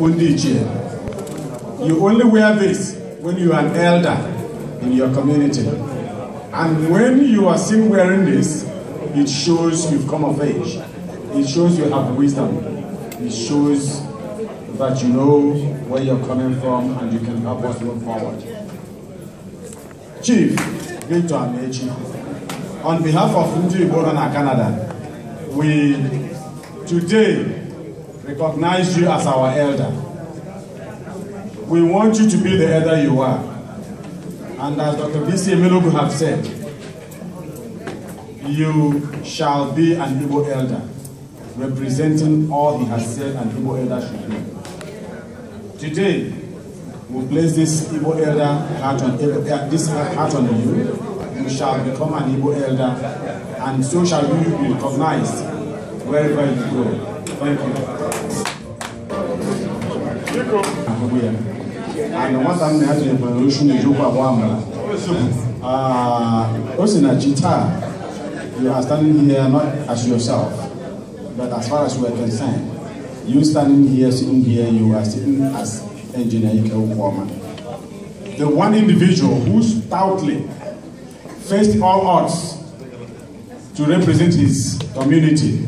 Ondiche. You only wear this when you are an elder in your community. And when you are seen wearing this, it shows you've come of age. It shows you have wisdom. It shows that you know where you're coming from and you can help us move forward. Chief Victor Amechi, on behalf of Ndiboran Canada, we today recognize you as our elder. We want you to be the elder you are. And as Dr. B.C. Emelogu have said, you shall be an Igbo elder, representing all he has said an Igbo elder should be. Today, we place this Igbo elder heart on, eh, eh, this heart on you. You shall become an Igbo elder, and so shall you be recognized wherever you go. Thank you nwata ah, m na ya jebere ochu na-ejikwa agba amara o si na ji taa you are standing here not as yourself but as far as we are concerned you standing here sitting here you are sitting as engineer Ike Okuoma the one individual who stoutly faced all odds to represent his community.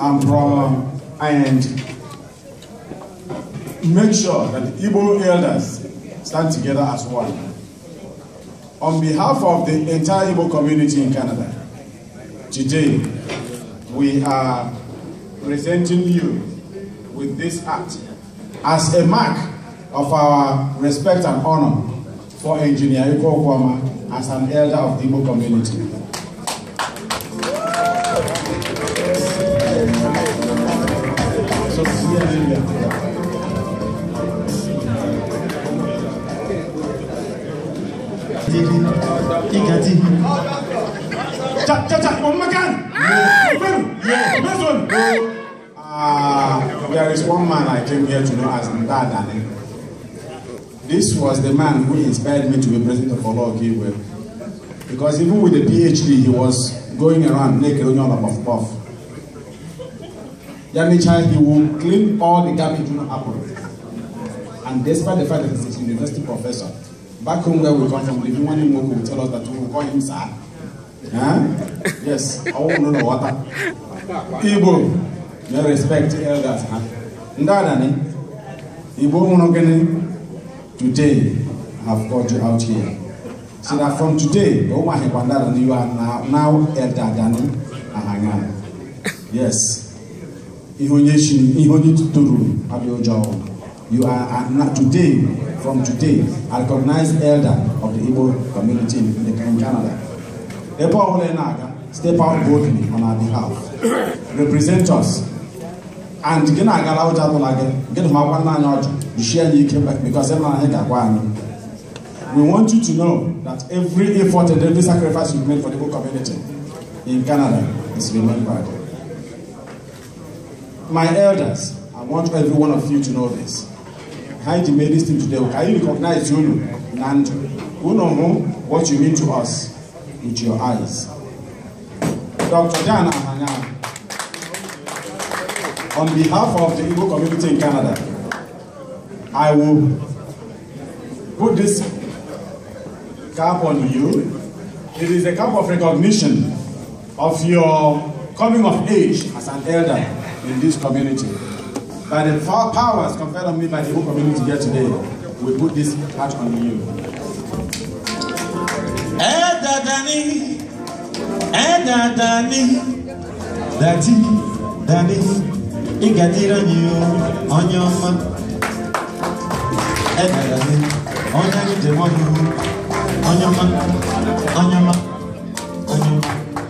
I'm from and make sure that the Igbo elders stand together as one. On behalf of the entire Igbo community in Canada, today we are presenting you with this act as a mark of our respect and honor for Engineer Iko Kwama as an elder of the Igbo community. Ah, there is one man I came here to know as Ndada. This was the man who inspired me to be president of Olaokiwe. Because even with a PhD, he was going around naked on your puff puff. Yami child, he will clean all the garbage in apple. And despite the fact that he's a university professor, back home where we come from, living one in Moko will tell us that we will call him sir. Huh? Yes, I won't know the water. Ibo, no respect elders. Huh? Ndanani, Ibo Munogene, today I have called you out here. So that from today, you are now now elder than Yes. Ihonyeshi, Ihonituturu Abiojao. You are not today, from today, a recognized elder of the Igbo community in, the, in Canada. Epo Olenaga, step out boldly on our behalf. Represent us. And gị na-agara ụjọ atụla gị gị na makwa nna anyị ọjọ jishie anyị ike because ebe anyị ga-agwa anyị we want you to know that every effort and every sacrifice you made for the whole community in Canada is remembered. My elders, I want every one of you to know this. Behind the Mary's team today, can you recognize Junu, Nando? Who know who, what you mean to us with your eyes. Dr. Dan Ahanya, on behalf of the Igbo community in Canada, I will put this cap on you. It is a cap of recognition of your coming of age as an elder in this community. By the powers conferred on me by the whole community here today, we put this hat on you. Ẹ̀dàdàní, ẹ̀dàdàní, dàtí, dàní, ìgàdìrán yìí o, ọ̀nyẹ́ ọmọ. Ẹ̀dàdàní, ọ̀nyẹ́ ní jẹ̀mọ́ yìí o, ọ̀nyẹ́ ọmọ, ọ̀nyẹ́ ọmọ, ọ̀nyẹ́ ọmọ,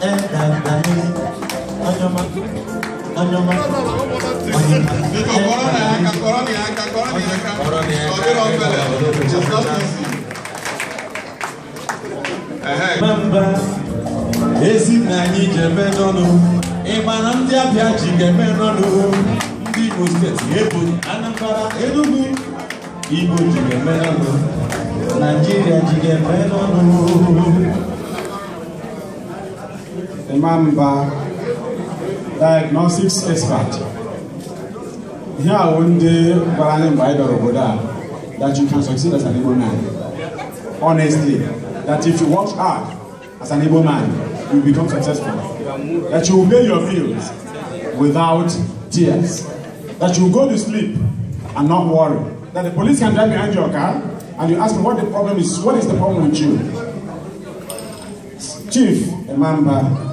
ẹ̀dàdàní, ọ̀nyẹ́ ọmọ. Wanyama. Memba ezi na anyị ji eme n'ọnụ ịma na ndị abịa ji ga-eme n'ọnụ ndị Imo steeti Ebonyi Anambra Enugu Igbo ji ga-eme n'ọnụ Naijiria ji ga-eme n'ọnụ Imamba diagnostics expert Here a wụ ndị gwara anyị mgbe anyị dọrọ that you can succeed as an able man honestly that if you work hard as an able man you become successful that you will pay your bills without tears that you will go to sleep and not worry that the police can drive behind your car and you ask them what the problem is what is the problem with you Chief Emamba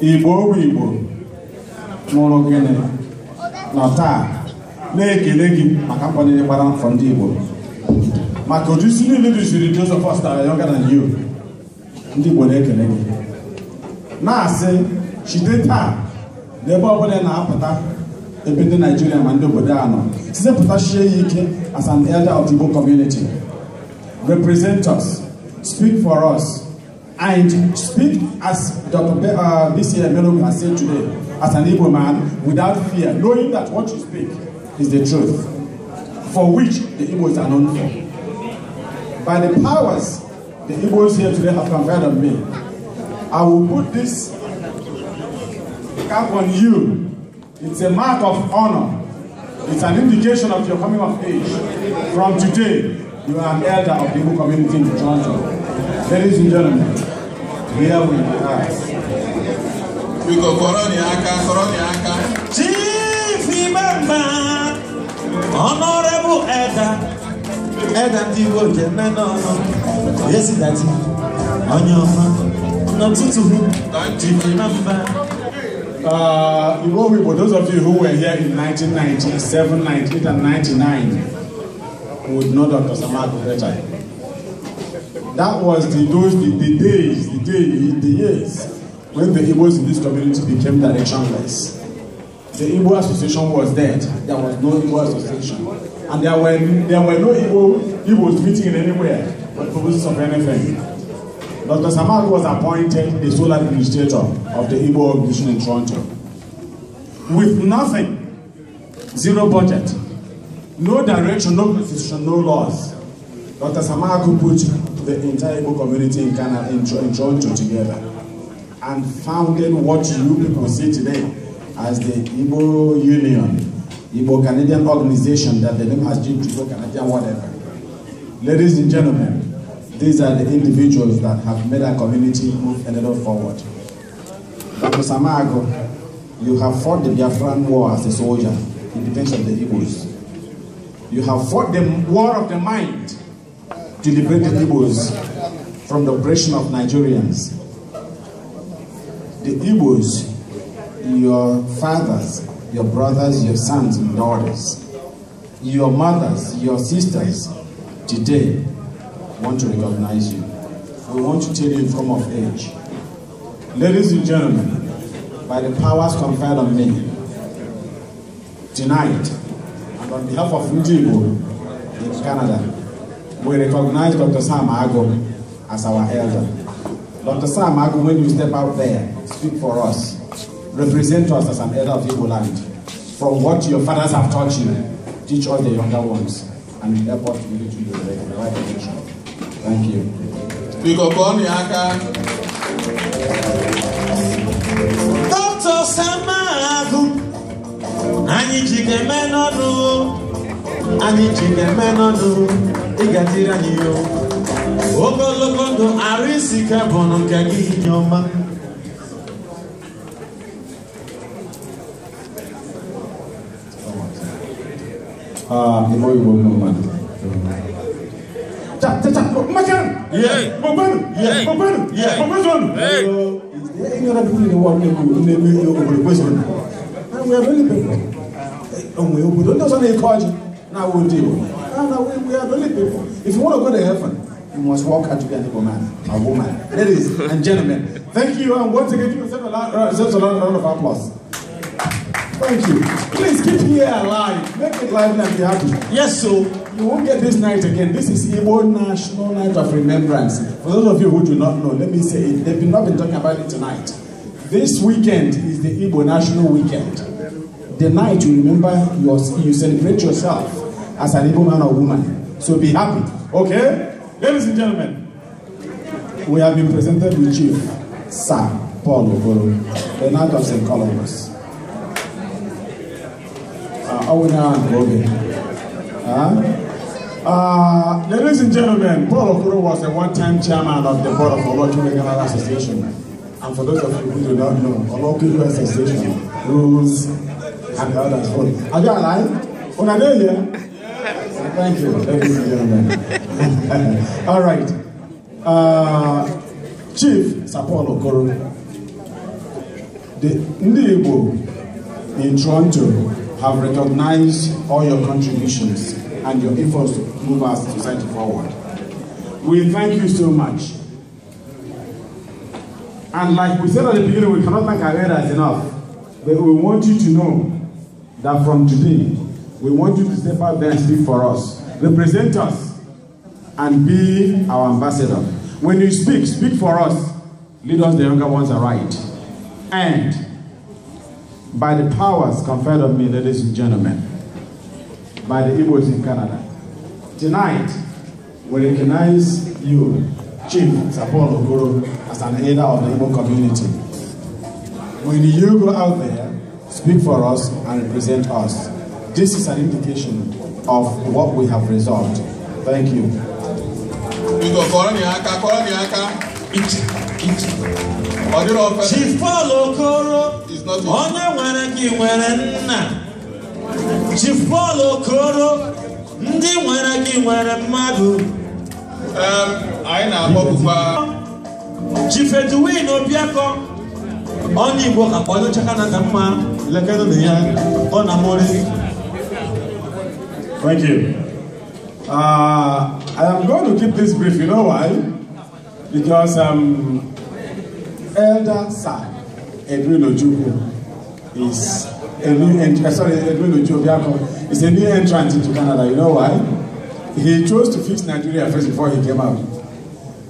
igbo ogbe igbo nwụrụ gịnị nọ taa na-ekele gị maka mkwanyere gbara afọ ndị igbo maka ụdị isi niile duziri Joseph Ostara Yoga na yo ndị igbo na-ekele gị na-asị chite taa n'ebe ọbụla na-apụta ebe ndị naijiria ma ndị obodo a nọ site ya ike as an elder of Igbo represent us speak for us and speak as Dr. Be uh, BCA Melo has said today, as an able man, without fear, knowing that what you speak is the truth, for which the Igbos are known for. By the powers the Igbos here today have conferred on me, I will put this cap on you. It's a mark of honor. It's an indication of your coming of age. From today, you are an elder of the Igbo community in Toronto. Ladies and gentlemen, here we are. We go Koroniaka, Koroniaka. Chief Imam, Honorable Eda Edda Tiwo Jemeno, Yesi Dati, Onyoma, Notutu, Chief Imam. Uh, you know, people, those of you who were here in 1997, 98, and 99 would know Dr. Samad Kuretai. That was the those the, the days, the day, the years when the Igbos in this community became directionless. The Igbo Association was dead. There was no Igbo Association. And there were there were no Igbo Igbos meeting anywhere for purposes of anything. Dr. Samag was appointed the sole administrator of the Igbo organization in Toronto. With nothing, zero budget, no direction, no constitution, no laws. Dr. could put the entire Igbo community in Ghana in, in together and founded what you people see today as the Igbo Union, Igbo Canadian organization that the name has changed to Igbo Canadian whatever. Ladies and gentlemen, these are the individuals that have made our community move a little forward. Dr. Samago, you have fought the Biafran War as a soldier in defense of the Igbos. You have fought the war of the mind to liberate the Igbos from the oppression of Nigerians. The Igbos, your fathers, your brothers, your sons and daughters, your mothers, your sisters, today want to recognize you. We want to tell you from of age. Ladies and gentlemen, by the powers conferred on me, tonight, and on behalf of Ndigo in Canada, we recognize Dr. Sam Agog as our elder. Dr. Sam Agog, when you step out there, speak for us. Represent us as an elder of Igbo land. From what your fathers have taught you, teach all the younger ones and help us to lead you the right direction. Thank you. Dr. Sam Agog, anyị ji ga-eme n'ọnụ anyị ji ga-eme n'ọnụ ị ga-adịrị anyị ihe ogologo ndụ arụ isi ike bụ nụ nke gị inye ọma Ibu ibu mama. Cak cak cak. Macam. Yeah. Bukan. Yeah. Bukan. Yeah. Bukan. Hey. Ini orang dulu ni warna ku. Ini ni ni orang boleh buat sana. Aku yang beli pun. Orang yang bodoh tu sana ikut aja. Nah, wudi. we, we are only people. If you want to go to heaven, you must walk out to be an able man, a woman. Ladies and gentlemen, thank you. And once again, give yourself a round, uh, round of applause. Thank you. Please keep here alive. Make it lively and be happy. Yes, so you won't get this night again. This is Igbo National Night of Remembrance. For those of you who do not know, let me say it. They've not been talking about it tonight. This weekend is the Igbo National Weekend. The night you remember, your, you celebrate yourself. as an able man or woman. So be happy. Okay? Ladies and gentlemen, we have been presented with Chief Sir Paul Ogoro, the Knight of St. Columbus. Uh, Owena and Robin. Uh, ladies and gentlemen, Paul Okuru was a one-time chairman of the board of Olojo Regional Association. And for those of you who do not know, Olojo Association rules and the others. Are you alive? On a day here. Thank you, ladies and gentlemen. All right. Uh, Chief Sapolo Okoro, the Ndibo in Toronto have recognized all your contributions and your efforts to move our society forward. We thank you so much. And like we said at the beginning, we cannot thank our elders enough. But we want you to know that from today, We want you to step out there and speak for us. Represent us and be our ambassador. When you speak, speak for us. Lead us, the younger ones, aright. And by the powers conferred on me, ladies and gentlemen, by the Igbos in Canada, tonight we recognize you, Chief Sapon Okoro, as an elder of the Igbo community. When you go out there, speak for us and represent us. This is an indication of what we have resolved. Thank you. Chifolo Koro, onye nwere gị nwere nna. Chifolo Koro, ndị nwere gị nwere mmadụ. Um, anyị na-akpọpụkwa. Chifeduwin Obiakọ, onye Igbo akpọnyecha Kanada mma lekenụ na ya, ọ na-amụrị. Thank you. Uh, I am going to keep this brief. You know why? Because um, Elder Sir Edwin Ojuku is a new entrant. Uh, sorry, Edwin Ojukwu is a new entrant into Canada. You know why? He chose to fix Nigeria first before he came out.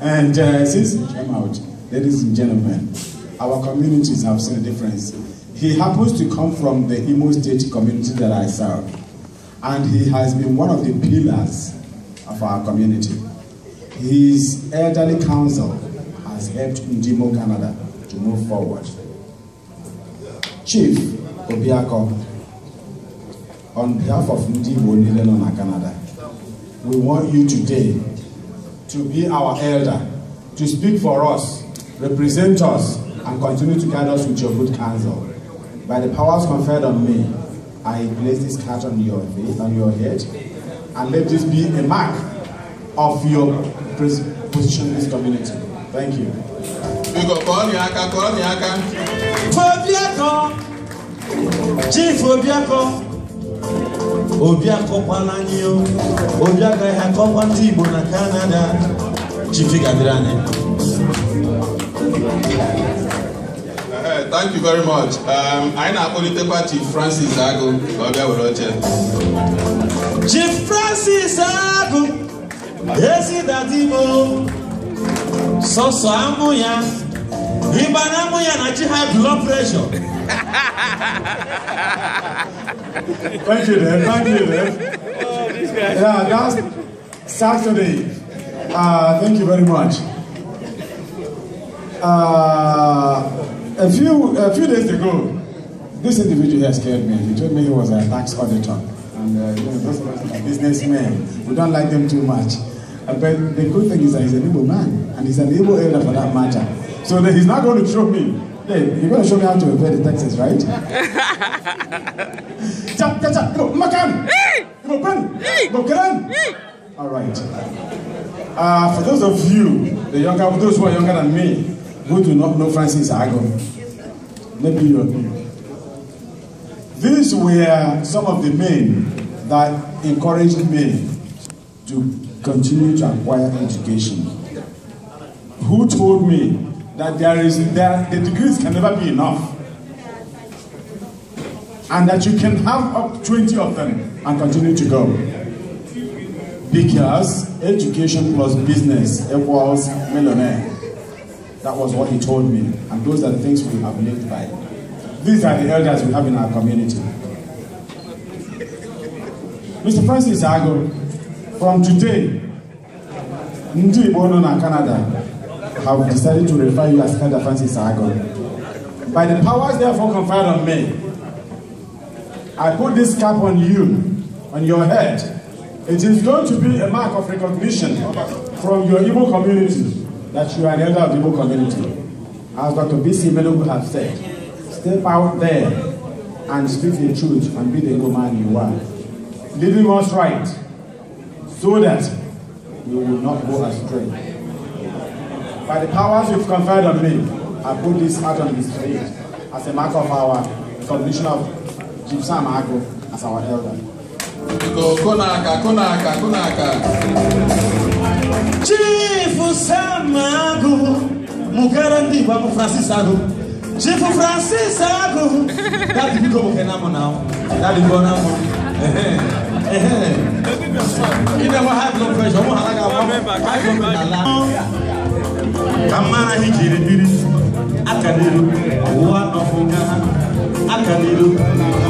And uh, since he came out, ladies and gentlemen, our communities have seen a difference. He happens to come from the Imo State community that I serve and he has been one of the pillars of our community. His elderly council has helped Ndimo Canada to move forward. Chief Obiako, on behalf of Ndimo Nilenona Canada, we want you today to be our elder, to speak for us, represent us, and continue to guide us with your good counsel. By the powers conferred on me, I place this hat on your face, on your head, and let this be a mark of your position in this community. Thank you. Obiako, Chief Fobiako, Obiako Palanio, Obiako Hakoma Tibo na Canada, Chief Gadrane. thank you very much anyị na-akpọlitekwa Chief Francis Agụ ka ọ bịa were oche Chief Francis Agụ ezidadimo sọsọ amụ ya ịba na amụ ya na chi high blood pressure thank you then thank you then yeah that's Saturday uh, thank you very much uh, a few, a few days ago, this individual here scared me. He told me he was a tax auditor. And uh, you know, those of us are businessmen, we don't like them too much. Uh, but the good thing is that he's an able man, and he's an able elder for that matter. So he's not going to show me. Hey, you're going to show me how to evade the taxes, right? Chap, chap, chap. Go, makan. Go, Go, All right. Uh, for those of you, the younger, those who are younger than me, who do not know Francis Agon. Maybe you These were some of the men that encouraged me to continue to acquire education. Who told me that there is there, the degrees can never be enough? And that you can have up 20 of them and continue to go. Because education plus business equals millionaire. That was what he told me, and those are the things we have lived by. These are the elders we have in our community. Mr. Francis Ago, from today, Ndi Bono and Canada have decided to refer you as Canada Francis Ago. By the powers therefore conferred on me, I put this cap on you, on your head. It is going to be a mark of recognition from your Igbo community that you are the elder of the Igbo community. As Dr. B.C. Melugu has said, step out there and speak the truth and be the Igbo man you are. Living us right so that we will not go astray. By the powers you've conferred on me, I put this out on display as a mark of our submission of Jim Sam as our elder. Konaka, konaka, konaka. Chifu Samago, Mukarandi, Babu Francis Ago. Chifu Francis Ago. That you go Kenamo now. That you go now. You never have no pressure. You I don't Kamara hijiri biri akadiru wa nofunga n'aka n'ilu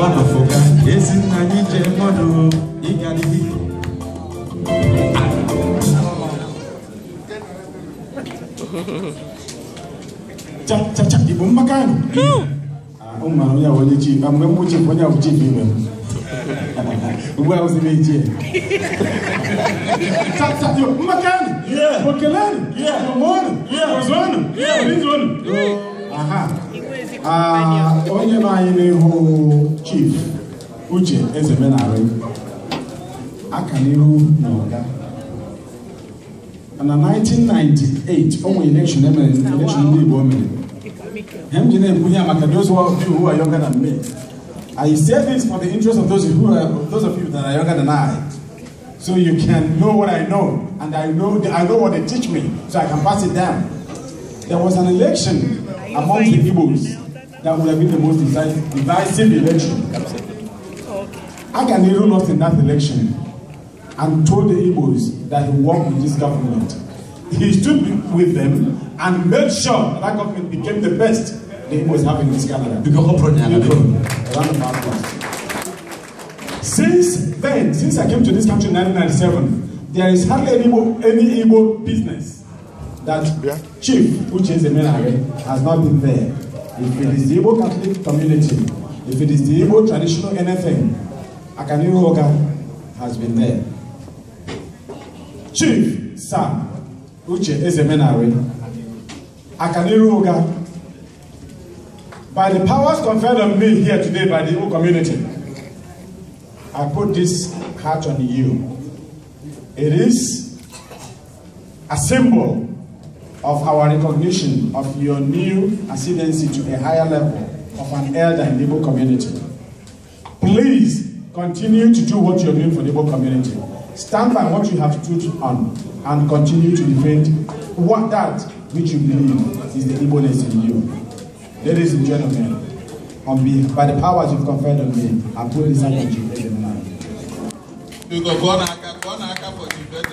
ọ nọfọ ka ezi nna anyị ji mmadụ ịga n'ihu chachacha igbo mmakani ụmụmara ah, onye onye chi mgbe m chi onye bụ chi bụ ibe m ugbu a ozi na-eji ya mmakani okelani mọmọnụ ọzọnụ ọrinzọnụ aha Ah, onye nọ anyị n'ihu chief uche ezemenarị aka n'ihu na ọga na 1998 o nwere election emere election ndị igbo mere ha m ji na-ekwu ya maka those who are younger than me I say this for the interest of those, who are, those of you that are younger than I so you can know what I know, and I know I know what they teach me, so I can pass it down. There was an election among the Igbos that would have been the most divisive election. I can Nehru lost in that election and told the Igbos that he worked with this government. He stood with them and made sure that, that government became the best the Igbos have in this Canada. Since then, since I came to this country in 1997, there is hardly any Igbo, any Igbo business that yeah. chief, which is the main has not been there. If it is the Igbo Catholic community, if it is the Igbo traditional anything, Akaniru Oga has been there. Chief, Sam, Uche Ezemenari, Akaniru Oga, by the powers conferred on me here today by the Igbo community, I put this hat on you. It is a symbol of our recognition of your new ascendancy to a higher level of an elder in Igbo community. Please continue to do what you're doing for the Igbo community. Stand by what you have stood on and continue to defend what that which you believe is the igbo in you. Ladies and gentlemen, on me, by the powers you've conferred on me, I put this energy in the